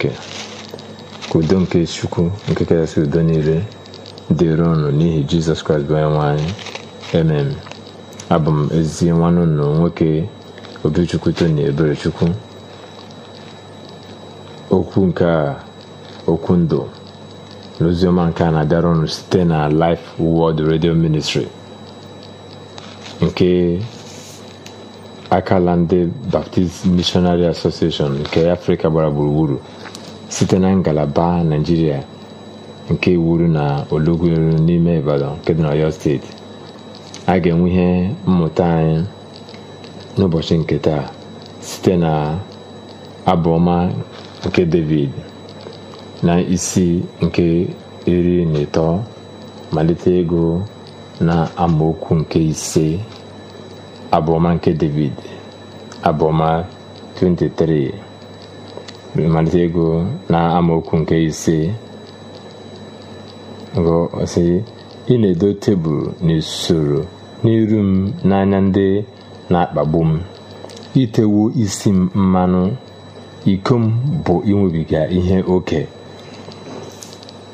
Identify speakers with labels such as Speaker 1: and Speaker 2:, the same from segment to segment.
Speaker 1: Chineke udo nke Chukwu nke kachasị udo niile dịrị ọnụ n'ihi Jizọs Kraịst bụ onye nwe emem abụ m ezi nwanne unu nwoke Obichukwu Tony Eberechukwu okwu nke a okwu ndụ n'oziọma nke a na-abịara ọnụ site na Life World Radio Ministry nke akala ndị Baptist Missionary Association nke Afrịka gbara gburugburu site na ngalaba nigeria nke Iwuru na Olugweru n'ime Ibadan nke dị na oyo steeti a ga-enwe ihe mmụta anyị n'ụbọchị nke taa site na abụọma nke David na isi nke iri na ịtọ malite ego na amaokwu nke ise abụọma nke david abụọma 23 malite ego na amaokwu nke ise sị ị na-edo tebụl n'usoro n'iru m n'anya ndị na-akpagbu m itewo isi m mmanụ iko m bụ inwebiga ihe oke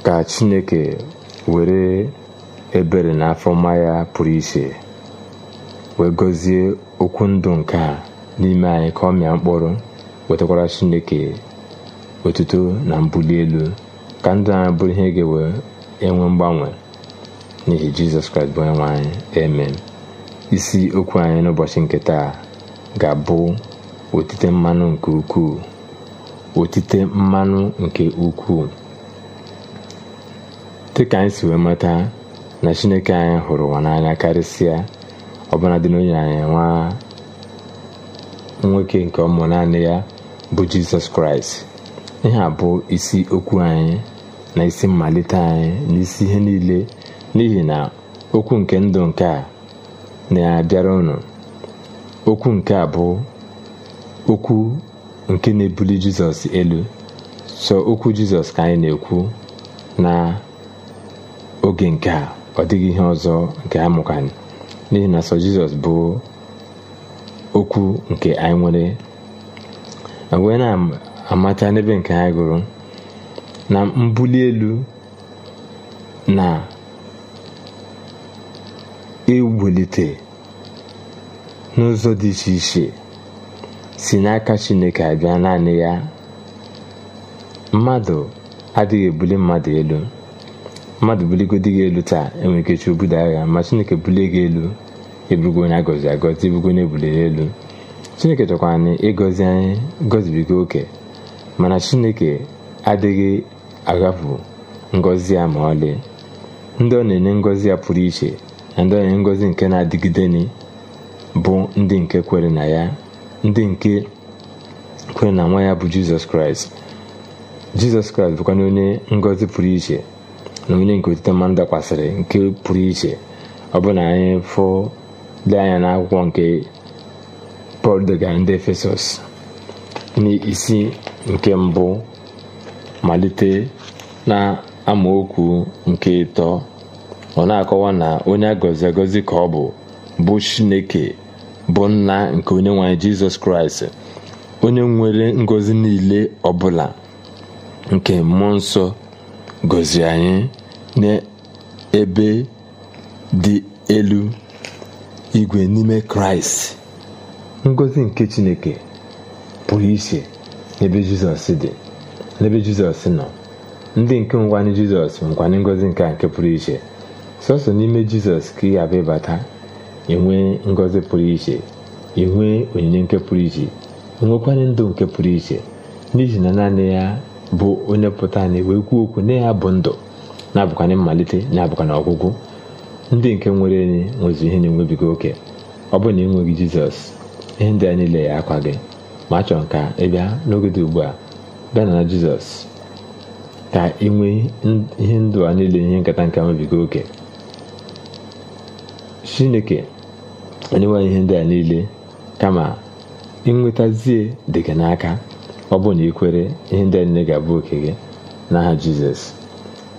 Speaker 1: ka chineke were ebere n'afọ afọ ya pụrụ iche wee gọzie okwu ndụ nke a n'ime anyị ka ọ mịa mkpụrụ wetakwara chineke otuto na mbuli elu ka ndụ anyị bụrụ ihe ga-ewe enwe mgbanwe n'ihi jizọs kraịst bụ onyenwe anyị amen isi okwu anyị n'ụbọchị nke taa ga-abụ otite mmanụ nke ukwuu otite mmanụ nke ukwuu dịka anyị si wee mata na chineke anyị hụrụ ụwa n'anya karịsịa ọbara dị n'onye anyị nwa nwoke nke ọmụ naanị ya bụ jizọs kraịst ihe a bụ isi okwu anyị na isi mmalite anyị na isi ihe niile n'ihi na okwu nke ndụ nke a na-abịara unu okwu nke a bụ okwu nke na-ebuli jizọs elu so okwu jizọs ka anyị na-ekwu na oge nke a ọ dịghị ihe ọzọ nke ha n'ihi na sọ jizọs bụ okwu nke anyị nwere wee na-amata n'ebe nke anyị gụrụ na mbuli elu na iwulite n'ụzọ dị iche iche si n'aka chineke abịa naanị ya mmadụ adịghị ebuli mmadụ elu mmadụ buligodi gị elu taa enwere ike chụ obodo agha ma chineke bulie gị elu eburugo onye agọzi e agọzi ebugo onye ebuliri elu chineke chọkwara na ịgọzi anyị gọzibigo oke mana chineke adịghị aghafu ngọzi ya ma ọlị ndị ọ na-enye ngọzi ya pụrụ iche na ndị ọ na-enye ngọzi nke na-adịgide bụ ndị nke kwere na ya ndị nke kwere na nwa ya bụ jizọs kraịst jizọs kraịst bụkwana onye ngọzi pụrụ iche na onye nke otite mmanụ dakwasịrị nke pụrụ iche ọ bụ na anyị fụ anya n'akwụkwọ nke pọl degara ndị efesọs n'isi nke mbụ malite na amaokwu nke ịtọ ọ na-akọwa na onye agọzi agọzi ka ọ bụ bụ chineke bụ nna nke onye nwanyị jizọs kraịst onye nwere ngọzi niile ọbụla nke mmụọ nsọ gọzie anyị n'ebe dị elu igwe n'ime kraịst ngozi nke chineke pụrụ iche n'ebe jizọs dị n'ebe jizọs nọ ndị nke nkwanye jizọs nkwanye ngọzi nke a nke pụrụ iche sọsọ n'ime jizọs ka ị abịa ịbata enwee ngọzi pụrụ iche enwee onyinye nke pụrụ iche nwekwanye ndụ nke pụrụ iche n'ihi na naanị ya bụ onye pụta anyị wee kwuo okwu na ya bụ ndụ na-abụkwana mmalite na na ọgwụgwụ ndị nke nwere enyi nwezi ihe na-enwebiga oke ọ bụ na enweghị jizọs ihe ndị a niile ya akwa gị ma achọrọ ka ị bịa n'oge dị ugbu a bịa na jizọs ka ị nwee ihe ndụ a niile ihe nkata nke nwebiga oke chineke enyewa ihe ndị a niile kama ịnwetazie dị gị n'aka ọ bụ na ị kwere ihe ndị anyị ga-abụ oke gị n'aha jizọs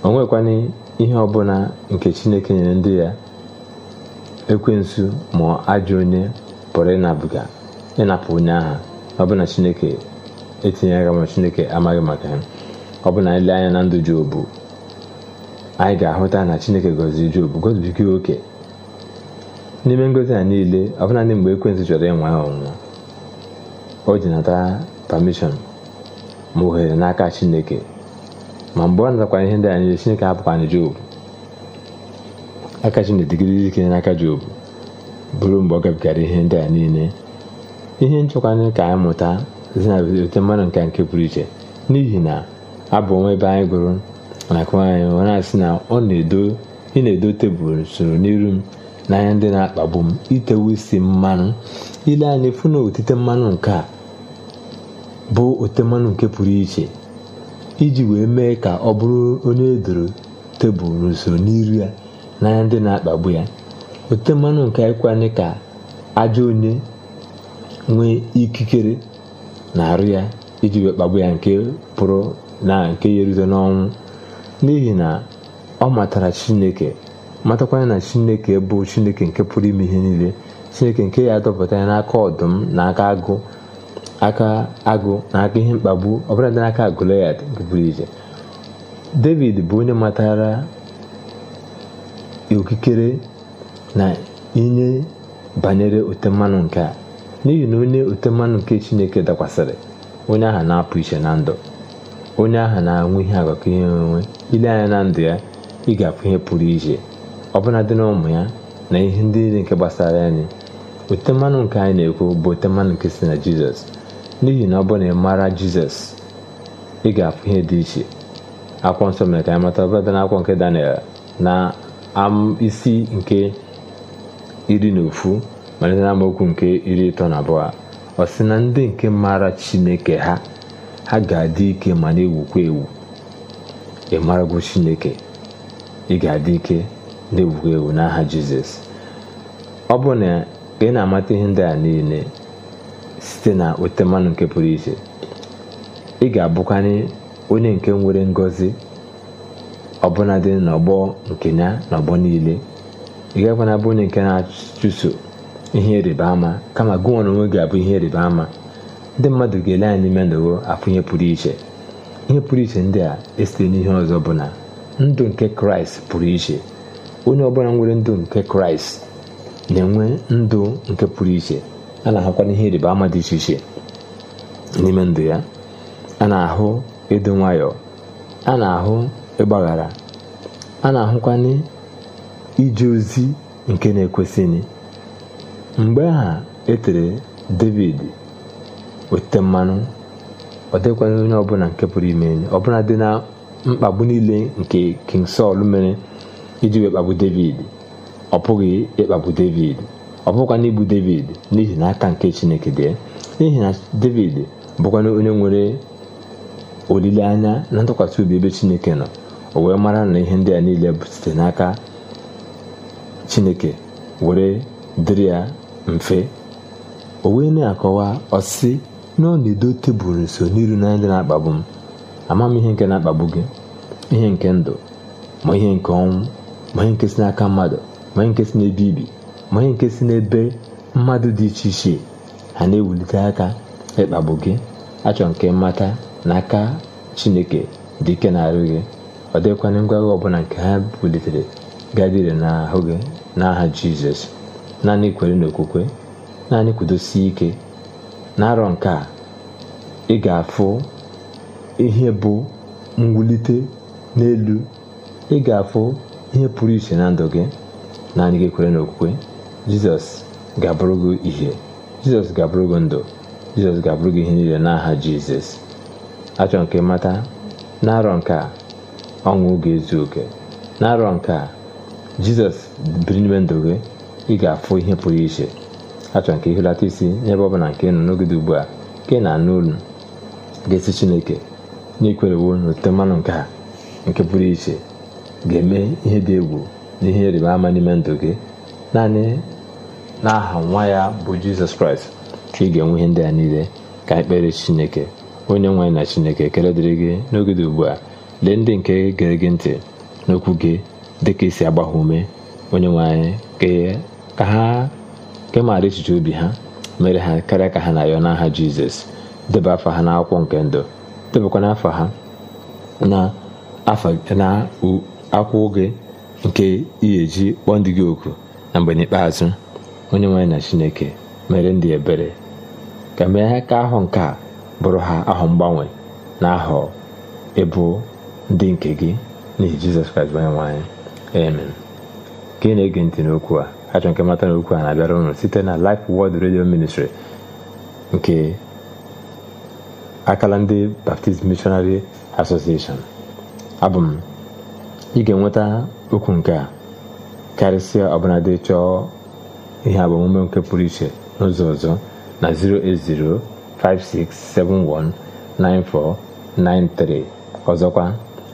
Speaker 1: o nwekwana ihe ọbụla nke chineke nyere ndị ya ekwensụ ma ajọ onye pụrụ ịnabuga ịnapụ onye aha ọbụna chineke etinyeghị ma chineke amaghị maka ya ọ bụna anya na ndụ jobu anyị ga-ahụta na chineke gọziri jobu gọzibiga oke n'ime ngozi a niile ọbụna ndị mgbe ekwensụ chọrọ ịnwa ya ọnwụnwa o ji nata permission ma ohere n'aka Chineke ma mgbe ọ natakwara ihe ndị a Chineke hapụkwara Job aka Chineke dịgidere ike n'aka Job bụrụ mgbe ọ gabigara ihe ndị a niile ihe nchọkwanye ka anyị mụta zinaote mmadụ nka nke pụrụ iche n'ihi na abụ onwe ebe anyị gụrụ nakwa anyị ọ na-asị na ọ na-edo ị na-edo tebụl soro n'iru m n'anya ndị na-akpagbu m itewu isi mmanụ ile anyị fụ na otite mmanụ nke a bụ ote mmanụ nke pụrụ iche iji wee mee ka ọ bụrụ onye edoro tebụl n'usoro n'iru ya n'anya ndị na-akpagbu ya ote mmanụ nke ịkwanye ka ajọ onye nwee ikikere na-arụ ya iji wee kpagbu ya nke pụrụ na nke ya erute n'ọnwụ n'ihi na ọ matara chineke matakwanya na chineke bụ chineke nke pụrụ ime ihe niile chineke nke ya adọpụta ya n'aka ọdụm na aka agụ aka agụ na aka ihe mkpagbu ọbụladị n'aka Goliath nke pụrụ iche David bụ onye matara okikere na inye banyere ote mmanụ nke a n'ihi na onye ote mmanụ nke Chineke dakwasịrị onye aha na-apụ iche na ndụ onye aha na-anwụ ihe agakọ ihe onwe ile anya na ndụ ya ị ga-apụ ihe pụrụ iche ọbụna dị na ụmụ ya na ihe ndị niile nke gbasara anyị ote mmanụ nke anyị na-ekwu bụ ote mmanụ nke si na Jizọs n'ihi na ọ na ị maara jizọs ị ga-afụ ihe dị iche akwụkwọ nsọ mere ka anyị mata ọbụladị n'akwụkwọ nke daniel na isi nke iri na ofu malite na amaokwu nke iri ịtọ na abụọ ọ si na ndị nke maara chineke ha ha ga-adị ike ma na-ewukwa ewu ị chineke ị ga-adị ike na-ewukwa ewu n'aha jizọs ọ bụ na ị na-amata ihe ndị a niile site na otuto mmanụ nke pụrụ iche ị ga-abụkwanye onye nke nwere ngọzi ọbụnadị n'ọgbọ nke ya n'ọgbọ niile ị gakwana bụ onye nke na-achụso ihe ịrịba ama kama gụnwa na onwe ga-abụ ihe ịrịba ama ndị mmadụ ga-ele anyị n'ime ndụwo afụ ihe pụrụ iche ihe pụrụ iche ndị a esite n'ihe ọzọ bụ na ndụ nke kraịst pụrụ iche onye ọbụla nwere ndụ nke kraịst na-enwe ndụ nke pụrụ iche a na-ahụkwana ihe ịrịba ama dị iche iche n'ime ndụ ya a na-ahụ ịdị nwayọ a na-ahụ ịgbaghara a na-ahụkwana ije ozi nke na-ekwesịghị mgbe aha etere david weta mmanụ ọ dịkwana onye ọbụla nke pụrụ ime enyi ọbụla dị na mkpagbu niile nke king sọl mere iji wee kpagbu david ọ pụghị ịkpagbu david ọ bụghịkwa n'igbu david n'ihi na aka nke chineke dị n'ihi na david bụkwana onye nwere olileanya na ntụkwasị obi ebe chineke nọ o wee mara na ihe ndị a niile bụ site n'aka chineke were dịrị ya mfe o wee na-akọwa ọsị na ọ na-edo tebụl nso n'iru na ndị na-akpagbu m ama m ihe nke na-akpagbu gị ihe nke ndụ ma ihe nke ọnwụ ma ihe nke si n'aka mmadụ ma ihe nke si n'ebe ibi ma nke si n'ebe mmadụ dị iche iche ha na-ewulite aka ịkpagbu gị achọrọ nke mmata na aka chineke dị ike na-arụ gị ọ dịghịkwana ngwagha ọbụla nke ha bulitere gadire n'ahụ gị n'aha jizọs naanị kwere n'okwukwe naanị kwudosi ike na-arọ nke a ị ga-afụ ihe bụ mwulite n'elu ị ga-afụ ihe pụrụ iche na ndụ gị naanị gị kwere n'okwukwe jizọs ga-abụrụ gị ihe jizọs ga-abụrụ gị ndụ jizọs ga-abụrụ gị ihe niile n'aha jizọs achọ nke mata na-arọ nke a ọnwụ ga-ezu oke na-arọ nke a jizọs biri n'ime ndụ gị ị ga-afụ ihe pụrụ iche achọ nke ihelata isi n'ebe ọ bụla nke nọ n'ogide ugbu a nke na-anụ olu ga-esi chineke n'ikwerewo n'ote mmanụ nke a nke pụrụ iche ga-eme ihe dị egwu na ihe ịrịba ama n'ime ndụ gị naanị n'aha nwa ya bụ jizọs kraịst ka ị ga-enwe ihe ndị a niile ka anyị chineke onye nwanyị na chineke ekele dịrị gị n'oge dị ugbu a lee ndị nke gere gị ntị n'okwu gị dịka isi agba ume onye nwe anyị ka e, ha ke maara echiche obi ha mere ha karịa ka ha na-ayọ n'aha jizọs debe afọ ha n'akwụkwọ nke ndụ debekwana afọ ha na gị nke ị kpọọ ndị gị oku na mgbe n'ikpeazụ onye nwanyị na chineke mere ndị ebere ka mee ka ahụ nke a bụrụ ha ahụ mgbanwe na ahụ ịbụ ndị nke gị n'ihi jizọs kraịst nwanyị onye nwaanyị amen ka na-ege ntị n'okwu a achọ nke mata n'okwu a na-abịara ụnụ site na Life world Radio Ministry nke akala ndị Baptist Missionary Association abụ m ị ga-enweta okwu nke a karịsịa ọbụladị chọọ ihe agbamume nke pụrụ iche n'ụzọ ọzọ na 08056719493 ọzọkwa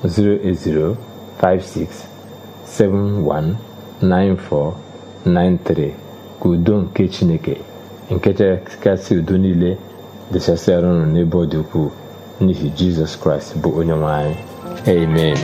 Speaker 1: 08056719493 ka udo nke chineke nke chekasị udo niile dịchasịara unu n'ebe ọ dị ukwuu n'ihi jizọs kraịst bụ onye nwe anyị amen